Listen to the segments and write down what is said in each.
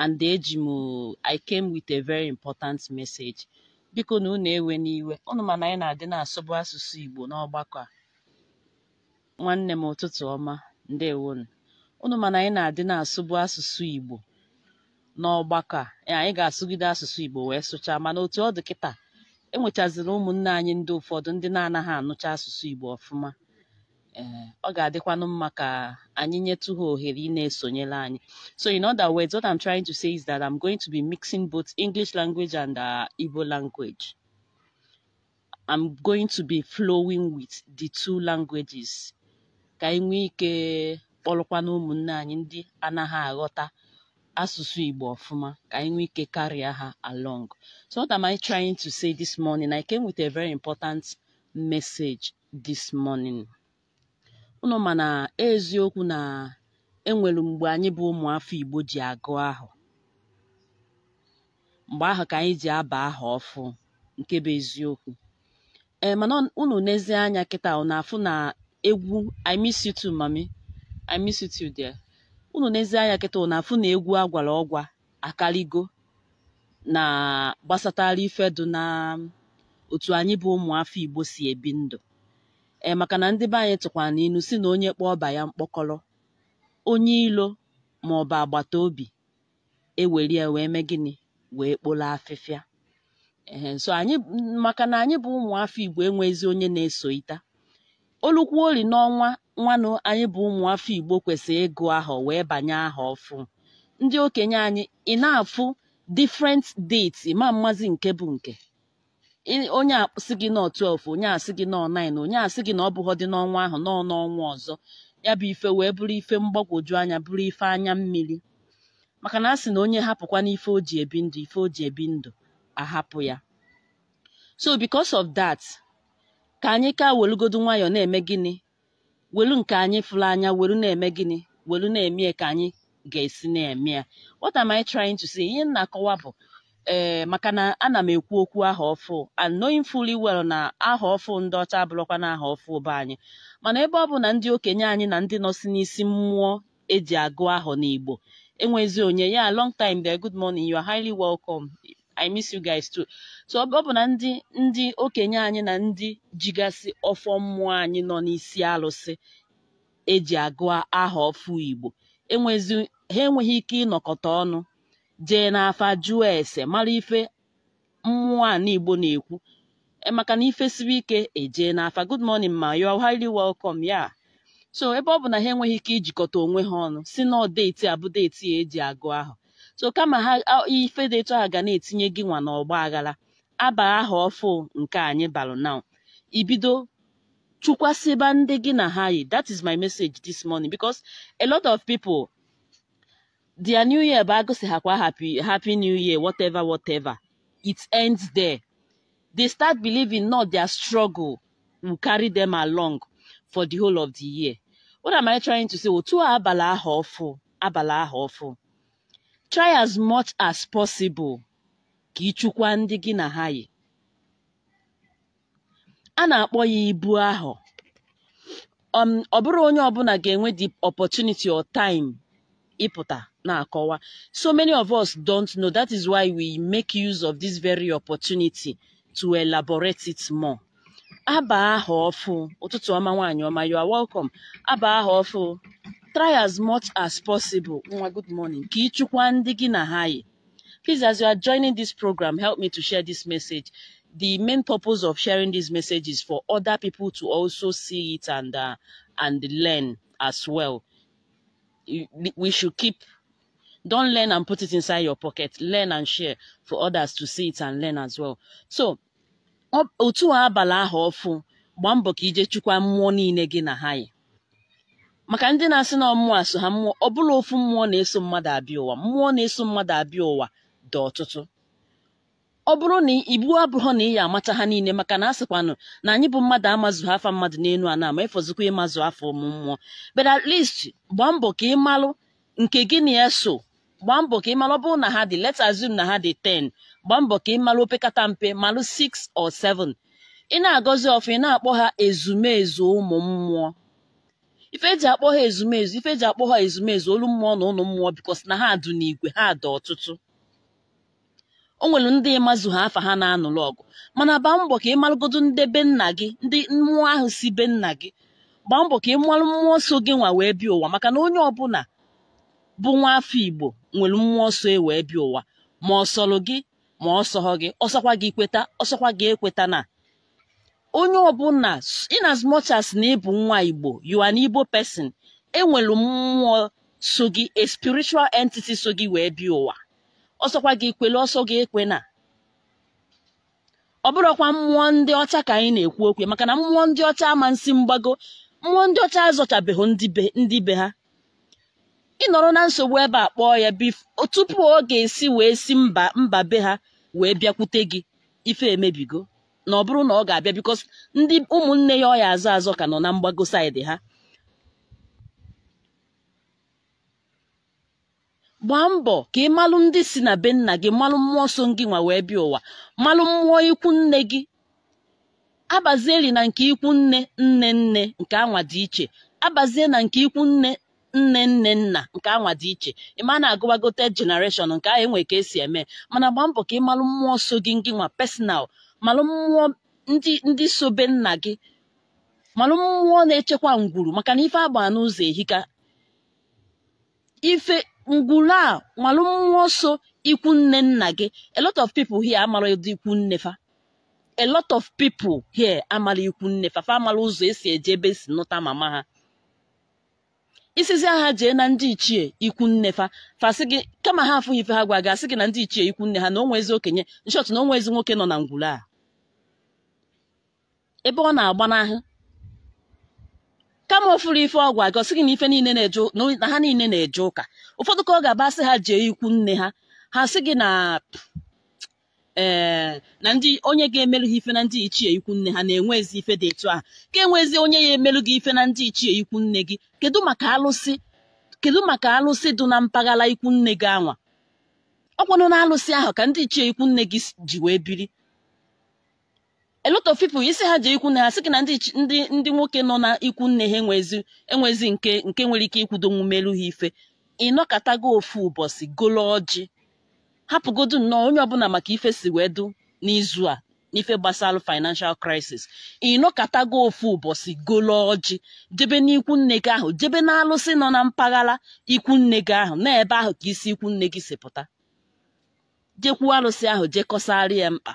and eji m I came with a very important message biko na unu ewe n'iwe unu mana anyị na-adị na asụsụ Igbo n'ọgbakọ a nwanne m ụtụtụ ọma ndewonu unu mana anyị na-adị na-asụbụ asụsụ Igbo n'ọgbakọ a e, anyị ga-asụgide asụsụ Igbo wee sụchaa mana otu ọ dị kịta enwechaziri ụmụnne anyị ndị ụfọdụ ndị na-anaghị anụcha asụsụ Igbo ọfụma Eh, ọ ga-adịkwanụ mma ka anyị nyetụ ha ohere ị na-esonyere anyị so in other words what I'm trying to say is that I'm going to be mixing both English language and uh, Igbo language I'm going to be flowing with the two languages ka anyị nwee ike kpọrọkwana ụmụnne anyị ndị anaghị aghọta asụsụ Igbo ọfụma ka anyị nwee ike karịa ha along so what am I trying to say this morning I came with a very important message this morning ụnụ mana eziokwu na enwere mgbe anyị bụ ụmụ afọ Igbo ji agụ ahụ mgbe ahụ ka anyị ji aba aha ọfụ nke bụ eziokwu ee eh, mana ụnụ n'ezie anya kịta ọ na-afụ na egwu I miss mami I miss ụnụ n'ezie anya kịta ọ na-afụ na egwu agwara ọgwa akarigo na gbasatara ifedu na otu anyị bụ ụmụ afọ Igbo si ebi ndụ e maka na ndị be anyị tụkwara n'ilu si na onye kpọọ ọba ya mkpọkọrọ onye ilo ma ọ bụ agbata obi eweri ya wee mee gịnị wee kpolo afịfịa ee eh, nso anyị maka na anyị bụ ụmụafọ igbo enweghịzi onye na-eso ita olukwu ori n'ọnwa nwanụ anyị bụ ụmụafọ igbo kwesịrị ịgụ ahọ wee banye aha ọfụ ndị okenye anyị ị na-afụ different dates ma mmazi nke bụ nke onye asị gị nọ 12 onye asị gị nọ 9 onye asị gị na ọ bụghọ dị n'ọnwa ahụ nọ n'ọnwa ọzọ ya bụ ife wee bụrụ ife mgbagwoju anya bụrụ ife anya mmiri maka na a sị na onye hapụkwa ife o ji ebi ndụ ife o ji ebi ndụ ahapụ ya so because of that ka anyị ka welugodu nwayọọ na-eme gịnị welu nke anyị fụrụ anya welu na-eme gịnị welu na-eme ka anyị ga-esi na-eme ya what am I trying to say ihe m na-akọwa bụ ee eh, makana ana m ekwu okwu aha ọfụ and knowing fully well na aha ọfụ ndị ọcha abụrụkwa na aha ọfụ ụba anyị mana ebe ọ bụ na ndị okenye anyị na ndị nọ si n'isi mmụọ eji agụ ahọ n'Igbo enwezi onye ya long time there good morning you are highly welcome I miss you guys too. so ọ bụ na ndị ndị okenye anyị na ndị jigasị ọfọ mmụọ anyị nọ n'isi alụsị eji agụ aha ọfụ Igbo enwezi ha enweghị ike ịnọkọta ọnụ jee n'afa jụọ ese mara ife mmụọ a n'igbo na-ekwu e, maka na ife siri ike ejee n'afa good morning ma you are highly welcome ya so ebe ọ bụ na ha enweghị ike ijikọta onwe ha ọnụ si na deeti abụ deeti ya eji agụ ahụ so kama ha ife dị etu ahụ ga na-etinye gị nwa n'ọgba aghara aba aha ọfụ nke anyị balụ na ibido chukwasịba ndị gị na ha yi that is my message this morning because a lot of people. their new year bụ agụsighakwa happy happy new year whatever whatever it ends there they start believing not their struggle will carry them along for the whole of the year what am i trying to say otu abalị ahụ ọfụ abalị ahụ ọfụ try as much as possible ka ịchụkwa ndị gị na ha yi a na-akpọ ya ibu ahụ um, ọ bụrụ onye ọbụla ga-enwe the opportunity or time na na-akọwa so many of us don't know that is why we make use of this very opportunity to elaborate it more. aba aha ọfụ ụtụtụ ọma you are welcome aba aha try as much as possible good morning ka ịchụkwa na please as you are joining this program help me to share this message the main purpose of sharing this message is for other people to also see it and uh, and learn as well we should keep don't learn and put it inside your pocket learn and share for others to see it and learn as well so otu abalị ahụ ọfụ gbaa mbọ ka ije chukwa mmụọ niile gị na ha maka ndị na-asị na mmụọ asụ ha mmụọ ọ bụla ofu mmụọ na-eso mmadụ abịa ụwa mmụọ na-eso mmadụ abịa ụwa dị ọtụtụ ọ bụrụ na ibu abụghọ na ị ya amacha ha niile maka na a sịkwanụ na anyị bụ mmadụ amazụ afa mmadụ n'elu a na-ama ịfọzikwa ịmazụ afọ ụmụ mmụọ but gbaa mbọ ka ị malụ nke gị na ya so gbaa mbọ ka ị malụ ọ bụrụ na ha dị let's na ha dị 10 gbaa mbọ ka ị malụ opekata mpe malụ 6 or 7 ị na-agọzi ọfụ ị na-akpọ ha ezumezu ụmụ mmụọ ife eji akpọ ha ezumezu ife eji akpọ ha ezumezu olu mmụọ na ụlọ mmụọ bikos na ha adụ n'igwe ha dị ọtụtụ o nwere ndị ịmazụ ha afa ha na-anụlụ ọgụ mana gbaa mbọ ka ị malụgodo ndị be nna gị ndị mmụọ ahụ si be nna gị gbaa mbọ ka ị malụ mmụọ nsọ gị nwa wee bịa ụwa maka na onye ọbụla bụ nwa afọ Igbo nwere mmụọ nsọ e wee bịa ụwa ma ọ sọrọ gị ma ọ gị ọsọkwa gị kweta ọsọkwa gị ekweta na onye ọbụla in as much as na ịbụ nwa Igbo you an Igbo person enwere mmụọ so gị a spiritual entity so gị wee bịa ụwa ọsọkwa gị kwele ọsọ gị ekwe na ọ bụrụkwa mmụọ ndị ọcha ka anyị na-ekwu okwu maka na mmụọ ndị ọcha ama nsị mgbago mmụọ ndị ọcha azọchabeghị ndị be ha ịnọrọ na nsogbu ebe a kpọọ ya bif tupu ọ ga-esi wee si mba mba be ha wee bịakwute gị ife emebigo na ọ bụrụ na ọ ga-abịa bikos ndị ụmụnne ya ọya azọ azọ ka nọ na mgbago saịdị ha gbaa mbọ ka ị malụ ndị si na be nna gị malụ mmụọ nsọ gị nwa wee bịa ụwa malụ mmụọ ikwu nne gị li na nke ikwu nne nne nne nke anwa dị iche abazie na nke ikwu nne nne nne nna nke anwa dị iche a na-agụwagote generation nke ahụ enwe ka esi eme mana gbaa mbọ ka ị malụ mmụọ nsọ gị gị nwa personal malụ mmụọ ndị ndị so be nna gị malụ mmụọ na-echekwa ngwuru maka na ife agba n'ụzọ ehika ife ngwuru a malụ mmụọ nsọ ikwu nne nna gị a lot of people here amara ụdị ikwu nne fa a lot of people here amara ikwu nne fa fa amara ụzọ esi eje ebe esi nụta mama ha isizi agha jee na ndị ichie ikwu nne fa fasị gị kama ha afụghị ife ha gwa gị asị gị na ndị ichie ikwu nne ha na onwe ezi okenye nshọt na onwe ezi nwoke nọ na ngwuru a ebe ọ na-agbanahụ kama ofuru ife ọgwụ a gị na ife niile na na ha niile na-eje ụka ụfọdụ ka ọ ga-abasị ha jee ikwu nne ha ha sị gị na ee eh, na ndị onye ga-emerụ ha ife na ndị ichie ikwu nne ha na enwe ezi ife dị etu ahụ ka enwezi onye ya emerụ gị ife na ndị ichie ikwu nne gị kedu maka alụsị kedu maka alụsị dị na mpaghara ikwu nne gị anwa ọ kwanụ na alụsị ahụ ka ndị ichie ikwu nne gị ji wee biri a lot of people isi ha ji ikwu na ha gị na ndị ndị nwoke nọ na ikwu nne ha enwezi nke nke nwere ike ikwudo melu ha ife gị ofu ụbọchị golo ọjị hapụgodu nnọọ onye ọbụla maka ife si wee du n'izu a n'ife gbasara financial crisis gị ofu ụbọchị golo ọjị jebe n'ikwu nne gị ahụ jebe na alụsị nọ na mpaghara ikwu nne gị ahụ na ebe ahụ ka isi ikwu nne gị si pụta jekwuo alụsị ahụ jekọsarị ya mkpa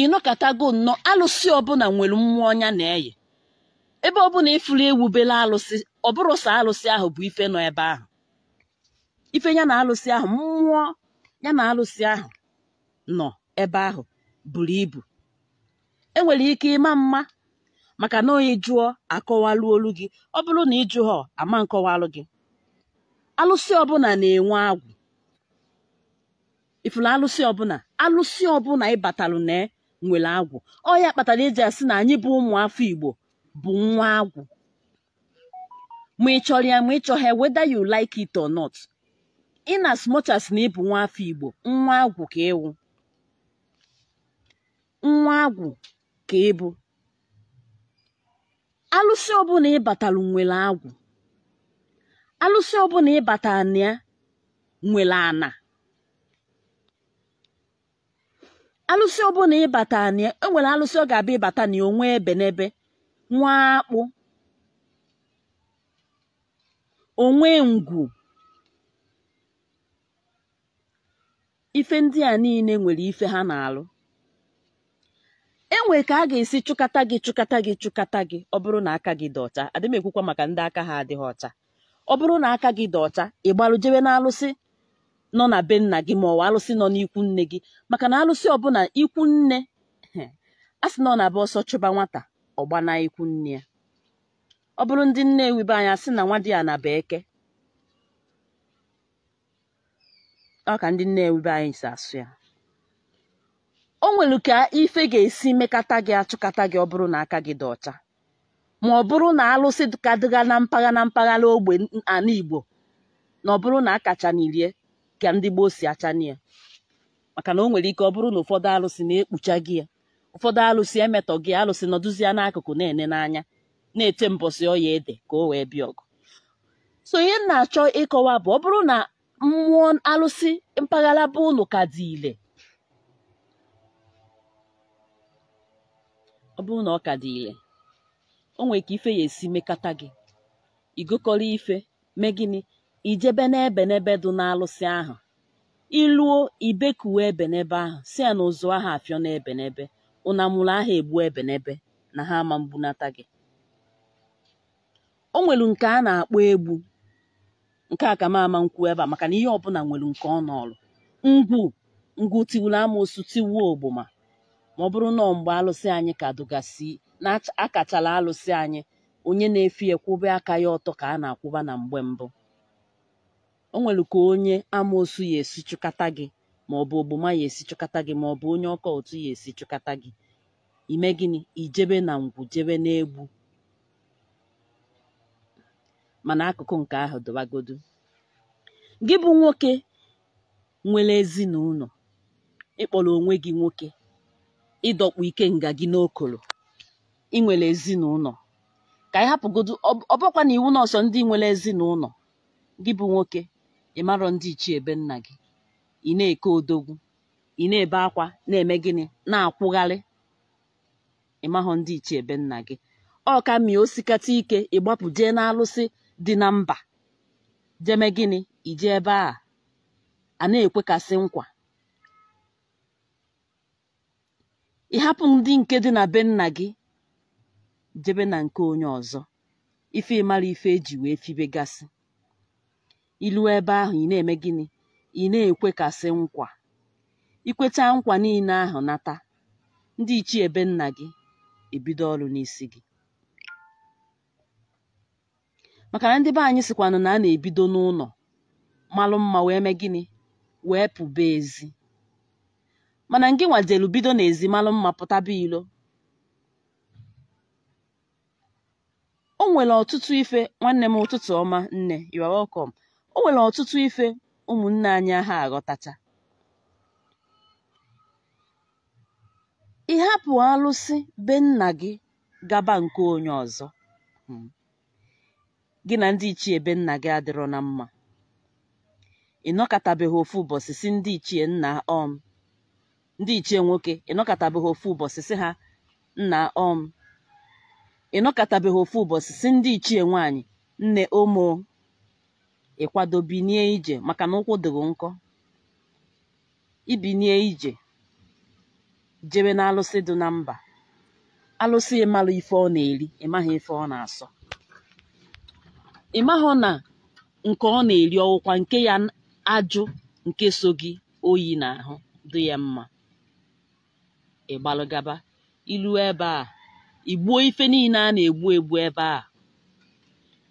ịnọkọtago nnọọ alụsị ọbụla nwere mmụọ ọnya na-eyi ebe ọbụla ịfụrụ ewubela alụsị ọ bụrụ sọ alụsị ahụ bụ ife nọ ebe ahụ ife ya na alụsị ahụ mmụọ ya na alụsị ahụ nọ ebe ahụ buru ibu enwere ike ịma mma maka na onye jụọ akọwalụ olu gị ọ bụrụ na ịjụ ha ama nkọwalụ gị alụsị ọbụla na-enwe agwụ ifuru alụsị ọbụla alụsị ọbụla ịbatalụ na nwere agwụ ọ ya kpatara eji asị na anyị bụ ụmụ afọ igbo bụ nwa agwụ ma ị chọrọ ya ma ị chọghị whether you like it or not in as na ịbụ nwa afọ igbo nwa agwụ ka ịwụ nwa agwụ ka ịbụ alụsị ọbụla ịbatara nwere agwụ alụsị ọbụla ịbatara na ya nwere ana alụsị ọbụla ịbata enwere alụsị ọ ga-abịa ịbata na onwe ebe n'ebe nwa akpụ onwe ngwu ife ndị a niile nwere ife ha na-alụ enwe ka a ga-esi chụkata gị chụkata gị chụkata gị ọ bụrụ na aka gị dị ọcha adị ekwukwa maka ndị aka ha adịghị ọcha ọ bụrụ na aka gị dị ọcha ị gbalụ jewe n'alụsị nọ na be nna gị ma ọ alụsị nọ n'ikwu nne gị maka na alụsị ọbụla ikwu nne a sị na ọ na-aba ọsọ chụba nwata ọ na ikwu nne ya ọ bụrụ ndị nne wibe anya sị na nwa dị ya na eke ọ ka ndị nne wibe anyị si asụ ya o nwere ka ife ga-esi mekata gị achụkata gị ọ bụrụ na aka gị dị ọcha ma ọ bụrụ na alụsị ka dịga na mpaghara na mpaghara ogbe ana Igbo na ọ bụrụ na kacha n'irie ka ndị gboo si achanye ya maka na o nwere ike ọ bụrụ na ụfọdụ alụsị na-ekpucha gị ya ụfọdụ alụsị emetọ gị alụsị nọdụzie n'akụkụ na-ene n'anya na-ete mbọsị ọya ede ka o wee bịa ọgụ so ihe na-achọ ịkọwa bụ ọ bụrụ na mmụọ alụsị mpaghara bụ ụnụ ka dị ile ọ bụrụ na ọ ka dị ile o nwere ka ife ya esi mekata gị igokọrọ ife mee gịnị ijebe n'ebe n'ebe dị n'alụsị ahụ iluo ibekuwe ebenebe ahụ si ya na ụzụ ahụ afịọ n'ebenebe ụnamụrụ ahụ egbu ebenebe na ha ama mbunata gị o nwelu nke a na-akpọ egbu nke a ka m ama nkwu ebe a maka na ihe ọbụla nwere nke ọ nọọlụ ngwu ngwu tiwuru amoosu tiwuo ogbuma, ma ọ bụrụ na mgbe alụsị anyị ka dụgasị na akachala alụsị anyị onye na-efi ekwube aka ya ọtọ ka a na-akwụba na mgbe mbụ o nwere ka onye amoosu ya esi chụkata gị ma ọ bụ ogboma ya esi chụkata gị ma ọ bụ onye ọka otu ya esi chụkata gị ime gịnị ijebe na ngwu jebe n'egbu mana akụkụ nke ahụ dọbagodu gị bụ nwoke nwere ezinụlọ ịkpọrọ onwe gị nwoke ịdọkpụ ike nga gị n'okolo ị nwere ezinụlọ ka ị hapụgodu ọbụkwa na iwu na ndị nwere ezinụlọ gị bụ nwoke ị marọ ndị ichie ebe nna gị ị na-eke odogwu ị na-ebe akwa na-eme gịnị na-akwụgharị ịmahụ ndị ichie ebe nna gị ọ ka osikata ike ịgbapụ jee n'alụsị dị na mba jeme gịnị ije ebe a a na-ekwekasị nkwa ịhapụ ndị nke dị na be nna gị jebe na nke onye ọzọ ife ịmara ife eji wee fibegasị Ilu ebe ahụ ị na-eme gịnị ị na-ekwekasị nkwa ikweta nkwa niile ahụ nata ndị ichie ebe nna gị ebido ọrụ n'isi gị maka na ndị be anyị sikwanụ na a na-ebido n'ụlọ malụ mma wee mee gịnị wee pụba ezi mana ngị nwadielu bido n'ezi malụ mma pụtaba ilo o nwere ọtụtụ ife nwanne m ụtụtụ ọma nne you o nwere ọtụtụ ife ụmụnne anyị ha aghọtacha ịhapụ alụsị be nna gị gaba nke onye ọzọ hmm. gị na ndị ichie be nna gị adịrọ na mma ịnọkọtabeghị ofu ụbọchị si ndị ichie nna ọm um, ndị ichie nwoke ịnọkọtabeghị ofu ụbọchị si ha nna ọm um, ịnọkọtabeghị ofu ụbọchị si ndị ichie nwaanyị nne omo ịkwado binie ije maka na ụkwụ dịghị nkọ ibinie ije jebe na alụsị dị na mba alụsị ịmalụ ife ọ na-eri ịmaghị ife ọ na-asọ ịmahụ na nke ọ na-eri ọwụkwa nke ya ajụ nke so gị oyi na ahụ dị ya mma ịgbalụgaba ilu ebe a igbuo ife niile a na-egbu egbu ebe a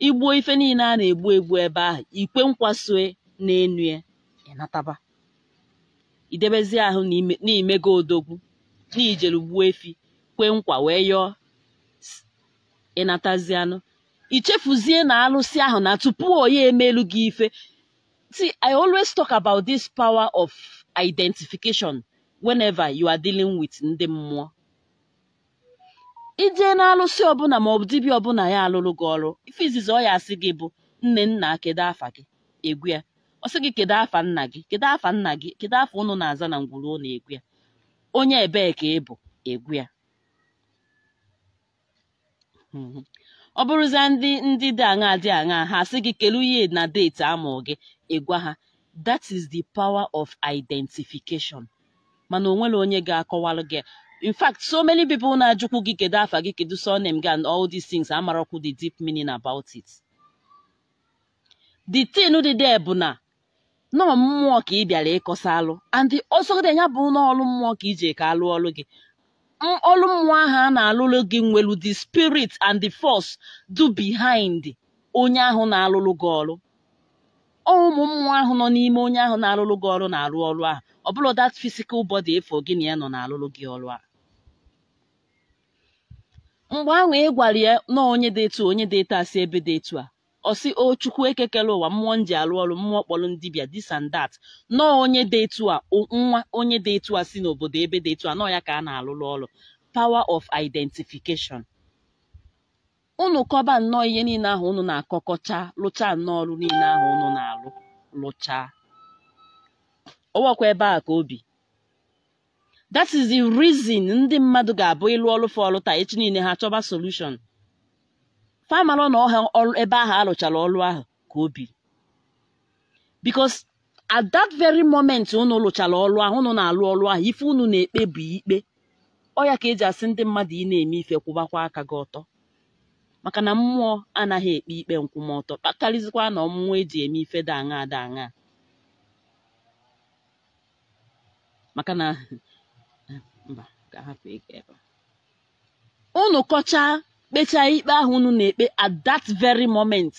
igbuo ife niile a na-egbu egbu ebe ahụ ikwe nkwasue na-enu ya ịnataba idebezi ahụ n'imego odogwu n'ijelu gbuo efi kwee nkwa wee yọọ ịnatazi anụ ichefuzie na alụsị ahụ na tupu onye emelu gị ife see i always talk about this power of identification whenever you are dealing with ndị mmụọ ijee na-alụsị ọbụla maọbụ dibịa ọbụla ya alụrụ gị ọrụ ife izizi ọ ya asị gị bụ nne nna kedu afa gị egwu ya ọ sị gị kedu afa nna gị kedu afa nna gị kedu afa ụnụ na-aza na ngwuru ụlọ, egwu ya onye ebee ka ị bụ egwu ya mhm. ọ bụrụzia ndị ndị dị aṅa dị aṅa ha asị gị kelu ihe na deeti amụ gị ịgwa ha that is the power of identification mana onwere onye ga-akọwalụ gị in fact so many people na-ajụkwu gị kedu afa gị kedu surname gị and all these things amarakwu the deep meaning about it the tin dị there bụ na nọọ mmụọ ka ị bịara ịkọsa alụ and dị ya bụ n'ọlụ mmụọ ka iji ka alụ ọlụ gị ọlụ mmụọ ahụ a na-alụlụ gị nwelu the spirit and the force do behind onye ahụ na-alụlụ gị ọlụ ụmụ mmụọ ahụ nọ n'ime onye ahụ na-alụlụ gị ọrụ na-arụ ọrụ ahụ ọ bụla that physical body efo gị na ya nọ na-alụlụ gị ọrụ ahụ mgbe ahụ ị e gwara ya na onye dị etu onye dị etu a si ebe dị etu a ọ sị o chukwu ekekere ụwa mmụọ m ji arụ ọrụ mmụọ kpọrọ ndịbịa this and that nọ onye dị etu a nwa onye dị etu a si n'obodo ebe dị etu a nọ ya ka a na-alụrụ ọrụ power of identification unu kọba nnọọ ihe niile ahụ unu na-akọkọcha lụchaa nnọọ ọrụ niile ahụ unu na-alụ lụchaa ọwọkwa ebe a ka obi that is the reason ndị mmadụ ga-abụ ịlụ ọrụ taa echi niile ha chọba solution famalụ na ọha ebe ahụ alụchara ọrụ ahụ ka obi because at that very moment unu lụchara ọlụ ahụ unu na-alụ ọrụ ahụ ife unu na-ekpe bụ ikpe ọya ya ka eji asị ndị mmadụ ị na-eme ife kwụbakwa aka gị ọtọ maka na mmụọ anaghị ekpe ikpe nkwụmọtọ karịzikwa na ọmụmụ eji eme ife daa aṅa daa aṅa maka na unu kọchaa kpechaa ikpe ahụ unu na-ekpe at that very moment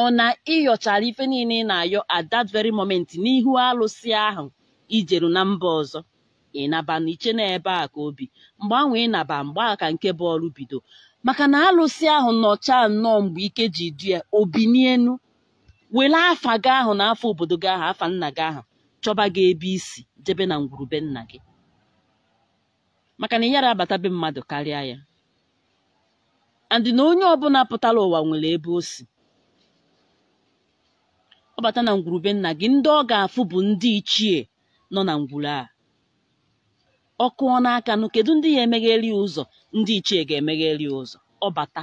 ọ na ịyọchara ife niile ị na-ayọ at that very moment n'ihu alụsị ahụ ijeru na mba ọzọ ịnaba na iche na ebe a ka obi mgbe ahụ ịnaba mgbe a ka nke bọọlụ bido maka na alụsị ahụ nọcha nnọọ mgbe ike ji du ya obinienu were afa gị ahụ na afọ obodo gị ahụ afa nna gị ahụ chọba gị ebe isi jebe na ngwurube nna gị maka na abata abatabe mmadụ karịa ya andị na onye ọbụla pụtara ụwa nwere ebe o si ọ bata na ngwurube nna gị ndị ọ ga-afụ bụ ndị ichie nọ na ngwuru a ọ kụọ n'aka nụ kedu ndị ya emegheri ụzọ ndị ichie ga-emegheri ụzọ ọ bata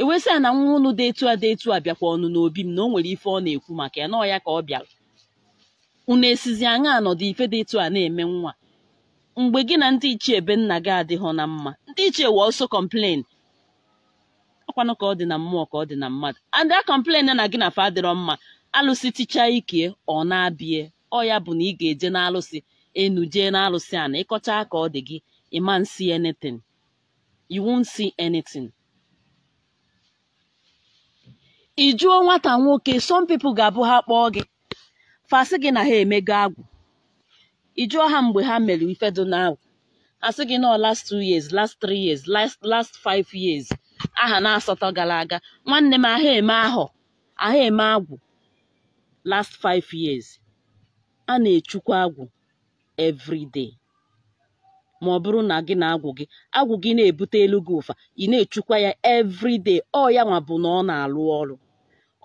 ewesị a na nwa ụnụ dị etu a dị etu a bịakwa ọnụ n'obi m na o nwere ife ọ na-ekwu maka ya na ya ka ọ bịara unu esizi anya anọdụ ife dị etu a na-eme nwa mgbe gị na ndị ichie benna gị adịghị na mma ndị ichie wee ọsọ kọmplen ọkwanụ ka ọ dị na mmụọ ka ọ dị na mmadụ and a kọmplen na gị na fa adịrọ mma alụsị ticha ike ọ na-abịa ọ ya bụ na ị ga-eje n'alụsị enu jee n'alụsị a na ịkọcha ka ọ dị gị ị ma nsi anything you won't see anything nwata nwoke some people ga-abụ ha kpọọ gị fasị gị na ha emego agwụ ị ha mgbe ha mere ife dị now a gị nọ last two years last three years last last five years aha na asatọ gara aga nwanne m aha eme ahụ aha eme agwụ last five years a na echukwu agwụ everyday ma ọ bụrụ na gị na agwụ gị agwụ gị na-ebute elu gị ụfa ị na-echukwa ya everyday ọ ya nwa bụ na ọ na-alụ ọrụ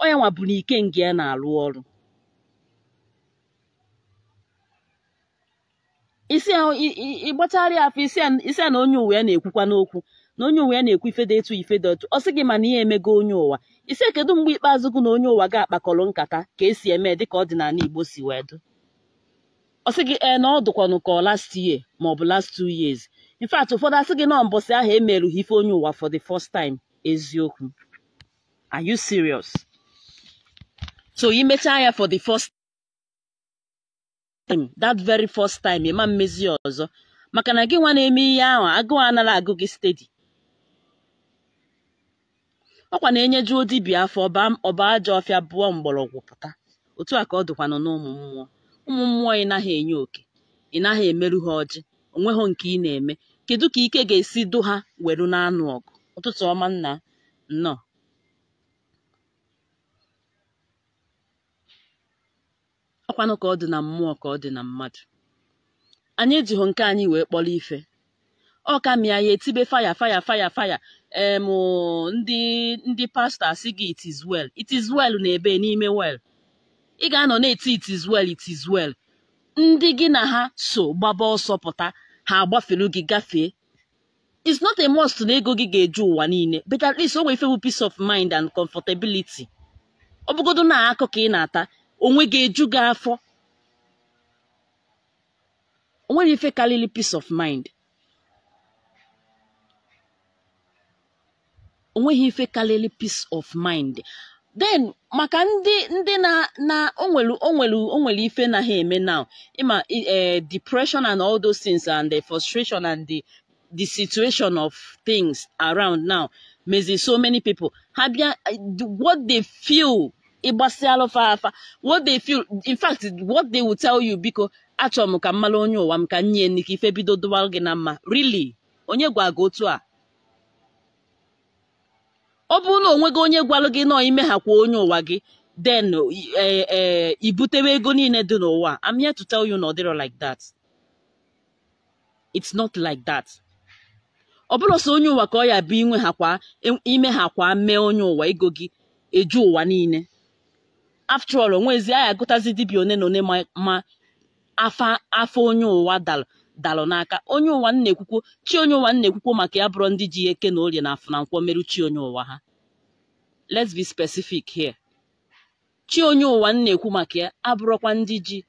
ọ ya nwa bụ na ike nga ya na-alụ ọrụ isi ahụ ịgbacharịa afọ isi a na onye uwe ya na-ekwukwa n'okwu na onye uwe ya na-ekwu ife dị etu ife dị otu ọ sị gị mana ihe emego onye ụwa isi kedu mgbe ikpeazụ gị na onye ụwa ga-akpakọrọ nkata ka esi eme ka ọdịnala Igbo si wee dụ ọ gị ee na ọ dụkwanụ ka ọ last year ma ọ bụ last two years in ụfọdụ asị gị na mbọsị ahụ emerụghị ife onye ụwa for the first time eziokwu are you serious so imechaa ya for the first time that very first time ịma mmezi ọzọ maka na gị nwa na-eme ihe ahụ agụụ anara agụ gị stedi ọ kwa na-enyejuo dibia afọ ọba aja ọfịa bụọ mgbọrọgwụ pụta otu a ka ọ dịkwanụ n'ụmụ mmụọ ụmụ mmụọ ị naghị enye oke ị naghị emerụ ha ọjị onweghị nke ị na-eme kedu ka ike ga-esi du ha weru n'anụ ọgụ ụtụtụ ọma nna nnọọ ọkwanụ ka ọ dị na mmụọ ka ọ dị na mmadụ anyị ejighị nke anyị wee kpọrọ ife ọ ka mịa ya etibe faya faya faya faya ndị ndị pastọ asị gị it is well it is well na ebe n'ime well ị ga-anọ na-eti it is well it is well ndị gị na ha so gbaba ọsọ pụta ha agbafelu gị gafee is not a must na ego gị ga-eju ụwa niile but at least o nwee ife bụ peace of mind and comfortability ọ bụgodo na akụ ka ị na-ata onwe ga-eju gị afọ onweghị ife karịrị peace of mind onweghị ife karịrị peace of mind then maka ndị ndị na na onwere onwere onwere ife na ha eme now ịma e, depression and all those things and the frustration and the the situation of things around now mezi so many people ha bịa eh, what they feel ịgbasịalụ fa afa what they feel in fact what they will tell you biko achọrọ m ka mmalụ onye ụwa m ka nye nne ka ife bido dụwalụ gị na mma really onye gwa gị otu a ọ bụrụ na onwe gị onye gwalụ gị nọ ime ha kwa onye ụwa gị den ibutewe e, e, ego niile dị n'ụwa I'm here to tell you na ọ like that it's not like that ọ bụrụ sọ onye ụwa ka ọ ya bụ inwe ha kwa e, ime ha kwa mee onye ụwa ego gị eju ụwa niile all, onwezi anyị agụtazi dibịa one na one ma afa afọ onye ụwa dalụ dalụ n'aka onye ụwa na-ekwukwo chi onye ụwa na-ekwukwo maka ya bụrụ ndị ji eke na orie na na nkwọ merụ chi onye ụwa ha let's be specific here chi onye ụwa na-ekwu maka ya abụrọkwa ndị ji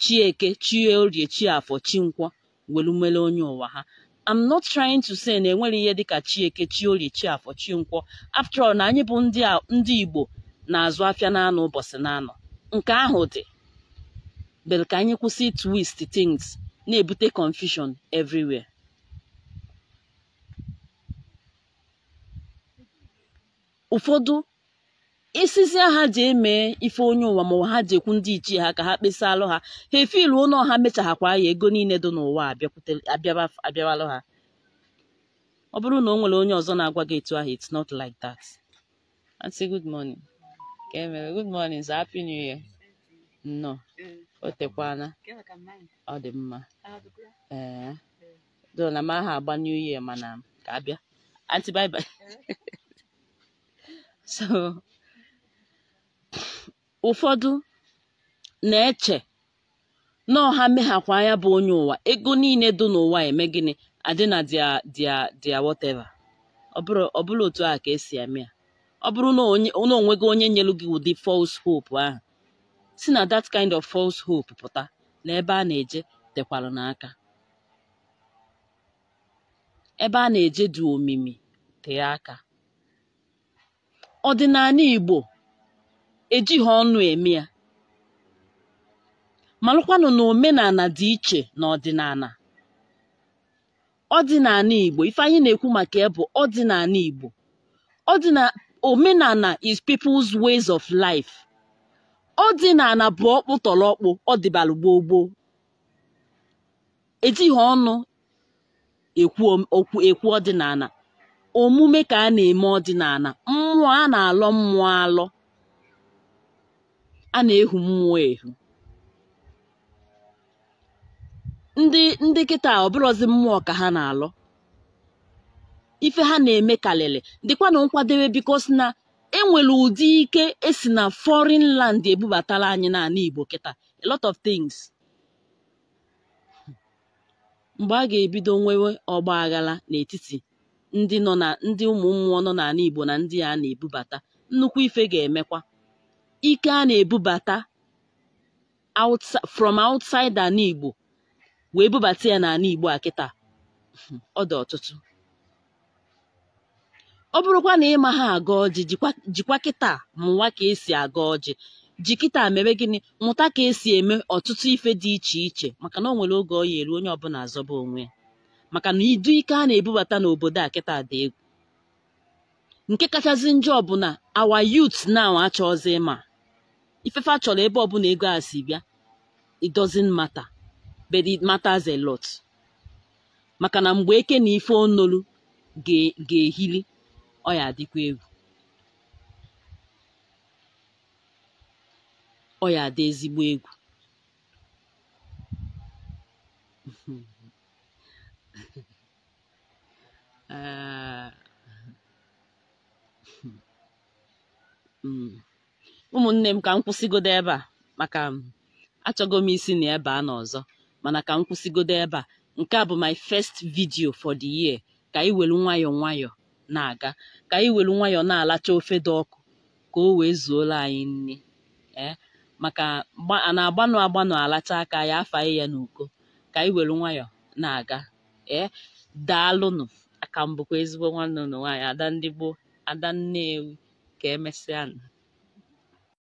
chi eke chi orie chi afọ chi nkwọ welumele onye ụwa ha I'm not trying to say na enwere ihe dịka chi eke chi orie chi afọ chi nkwọ after all na anyị bụ ndị Igbo na-azụ afịa na-anọ ụbọchị na-anọ nke ahụ dị bere ka anyị kwụsị twist things na-ebute confusion everywhere ụfọdụ Isisi ha ji emee ife onye ụwa ma ha ji ekwu ndị ichie ha ka ha kpesa alụ ha ha efilu ụlọ ha mechaghakwa ya ego niile dị n'ụwa abịawalụ ha ọ bụrụ na o nwere onye ọzọ na-agwa gị etu ahụ it's not like that ka e good morning happy new year nnọọ o tekwana ọ dị mma ee do na mma aha agba new year mana ka abịa anti bye bye so ụfọdụ na-eche na ọha meghakwa ya bụ onye ụwa ego niile dị n'ụwa eme gịnị adị na dia dia dia whatever ọ bụrụ otu a ka esi eme ya ọ bụrụ na onwe gị onye nyelu gị ụdị false hope ahụ si na that kind of false hope pụta na ebe a na-eje tekwara n'aka ebe a na-eje dị omimi tee aka ọdịnala Igbo ejighị ọnụ eme ya malụkwanụ na omenala dị iche na ọdịnala ọdịnala Igbo ife na-ekwu maka ya ọdịnala Igbo ọdịnala omenala is people's ways of life ọdịnala bụ ọkpụ tọrọ ọkpụ ọ gboo gboo ejighị ọnụ ekwu ọdịnala omume ka a na-eme ọdịnala mmụọ a na-alọ mmụọ alọ a na-ehu mmụọ ehu ndị ndị kịta ọbụrọzi mmụọ ka ha na-alọ ife ha na-eme karịrị dịkwana nkwadebe biko si na enwere ụdị ike esi na foreign land ebubatara anyị n'ala Igbo kịta a lot of things mgbe a ga-ebido nwewe ọgba aghara n'etiti ndị nọ na ndị ụmụ mmụọ nọ n'ala Igbo na ndị a na-ebubata nnukwu ife ga-emekwa ike a na-ebubata from outside ala Igbo wee bubata ya n'ala Igbo a kịta ọ dị ọtụtụ ọ bụrụkwa na ịma ha aga ọjị jikwa kịta mụwa ka esi aga ọjị ji kịta mere gịnị mụta ka esi eme ọtụtụ ife dị iche iche maka na o nwere oge ọ ya eru onye ọbụla azọba onwe ya maka na idu ike a na-ebubata n'obodo a kịta dị egwu nke kachasị njọ ọbụla awa youth now achọọzi ịma ifefe a chọrọ ebe ọbụla ego a si bịa it doesn't matter but it matters a lot maka na mgbe eke na ife onolu ga-ehili ọ ya adịkwa egwu ọ ya adị ezigbo egwu ụmụnne m ka m kwụsịgodo ebe a maka achọgo m isi na ebe a n'ọzọ mana ka m kwụsịgodo ebe a nke a bụ my first video for the year ka anyị welu nwayọọ nwayọọ na-aga ka anyị were nwayọọ na-alacha ofe dị ọkụ ka o wee zuola anyị nri eh? maka a na-agbanụ agbanụ alacha aka ya afaghị ya n'uko ka anyị were nwayọọ na-aga ee eh? daalụnụ aka mbụkwa ezigbo nwanne ụnụ nwaanyị ada ndị gboo ada nnewi ka emesịa